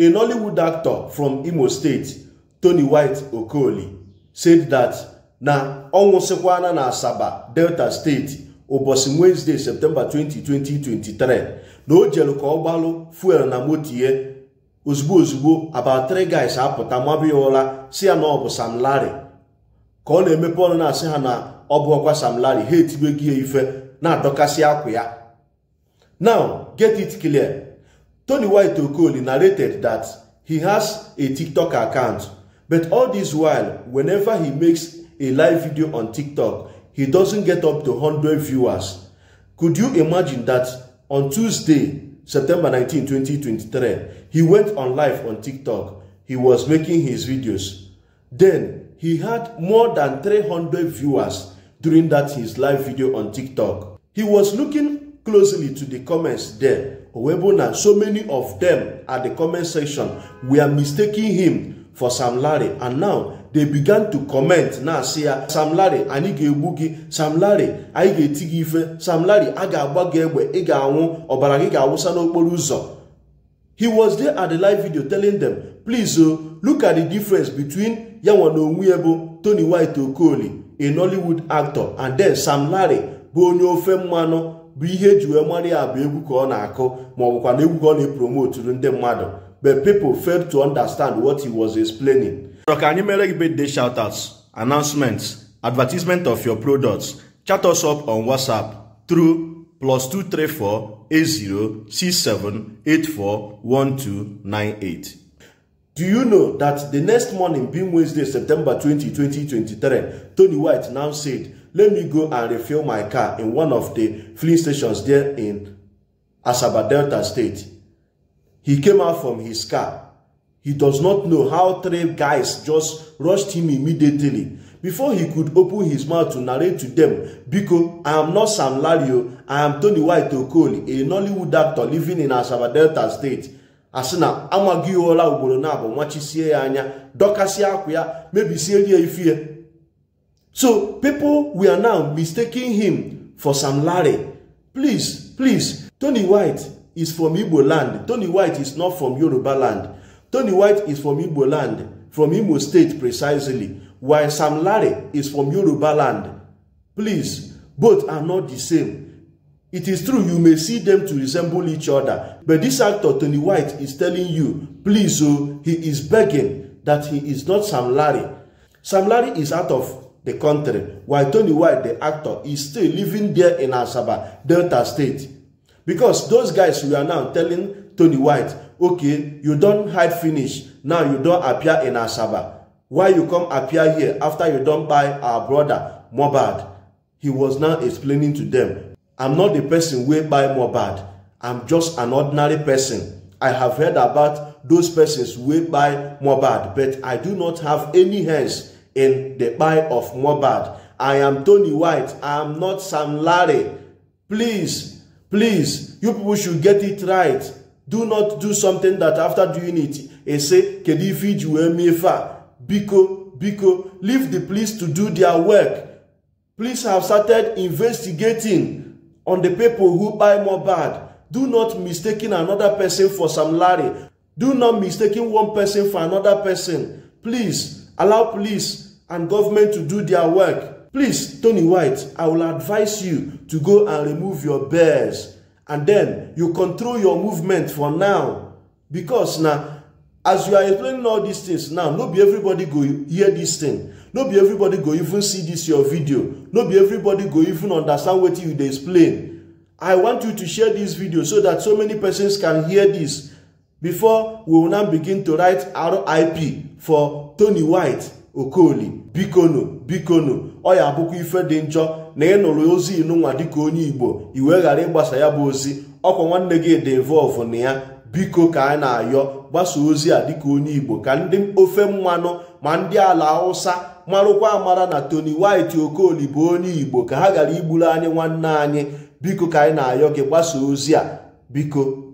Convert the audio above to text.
A Nollywood actor from Imo State, Tony White Okoli, said that na ọ na Asaba, Delta steeti ụbọchị Wednesday, septemba 20, 2023, na o jere ka ọ gbalụ fuel na moto ozugbo ozugbo about three guys apụta mabụ ya ụra si ya na ọ bụ Sam Larry ka ọ na-emepe ọnụ na-asị ha na ọ bụ ọkwa Sam Larry ha gi ya ife na-adọkasị akwa ya now get it clear Tony White Okoli narrated that he has a TikTok account, but all this while, whenever he makes a live video on TikTok, he doesn't get up to 100 viewers. Could you imagine that on Tuesday, September 19, 2023, he went on live on TikTok. He was making his videos. Then he had more than 300 viewers during that his live video on TikTok. He was looking closely to the comments there Owebona, so many of them at the comment section were mistaking him for Sam Larry. And now they began to comment na say ya ah, Sam Larry anyị ga-egbu gị Sam Larry anyị ga-eti gị ife Sam Larry a ga-agba gị egbe ị ga-anwụ ọbara gị ga-awụsa n'okporo ụzọ he was there at the live video telling them please o oh, look at the difference between ya nwa na onwe ya Tony White Okoli a Nollywood actor and then Sam Larry bụ onye ofe mmanụ bụ ihe eji wee mara ya bụ egwu ka ọ na-akụ ma ọ bụkwa na egwu ka ọ na-epromoturu ndị mmadụ but people failed to understand what he was explaining. ọ̀rọ̀ ka anyị mere gị birthday shoutouts announcements advertisement of your products chat us up on whatsapp through plus 2348067841298. Do you know that the next morning being Wednesday September 20, 2023 Tony White now said let me go and refill my car in one of the filling stations there in Asaba Delta State. He came out from his car. He does not know how three guys just rushed him immediately. Before he could open his mouth to narrate to them, Biko, I am not Sam Lario, I am Tony White Okoli, a Nollywood actor living in Asaba Delta State. asị na amaghị ụra ugboro na abụ nwachisie ya anya dọkasịa akwa ya mebisieri ya ifie So people we are now mistaking him for Sam Larry. Please, please, Tony White is from Igbo land. Tony White is not from Yoruba land. Tony White is from Igbo land, from Imo state precisely, while Sam Larry is from Yoruba land. Please, both are not the same. It is true you may see them to resemble each other, but this actor Tony White is telling you, please oh, he is begging that he is not Sam Larry. Sam Larry is out of the country, while Tony White, the actor, is still living there in Asaba, Delta State. Because those guys were now telling Tony White, okay, you don't hide finish, now you don't appear in Asaba. Why you come appear here after you don't buy our brother, Mobad? He was now explaining to them, I'm not the person way buy Mobad. I'm just an ordinary person. I have heard about those persons way buy Mobad, but I do not have any hands in the buy of Mobad. I am Tony White. I am not Sam Larry. Please, please, you people should get it right. Do not do something that after doing it, they say, Kedifi Juemefa, Biko, Biko, leave the police to do their work. Police have started investigating on the people who buy mobad. Do not mistaking another person for Sam Larry. Do not mistaking one person for another person. Please, Allow police and government to do their work. Please, Tony White, I will advise you to go and remove your bears. And then you control your movement for now. Because now, as you are explaining all these things now, not be everybody go hear this thing. not be everybody go even see this your video. not be everybody go even understand what you explain. I want you to share this video so that so many persons can hear this before we will now begin to write RIP for Tony White Okoli bikono bikono ọya ya abụkwa ife dị njọ na ị nụrụ ozi inụnwa dịka onye Igbo iwe ghara ịgbasa ya bụ ozi ọkwa nwanne gị dị involve na ya biko ka anyị na-ayọ gbasa ozi a dịka onye Igbo ka ndị ofe mmanụ ma ndị ala Hausa marụkwa amara na Tony White Okoli bụ onye Igbo ka ha gara igburu anyị nwanne anyị biko ka anyị na-ayọ gị gbasa ozi a biko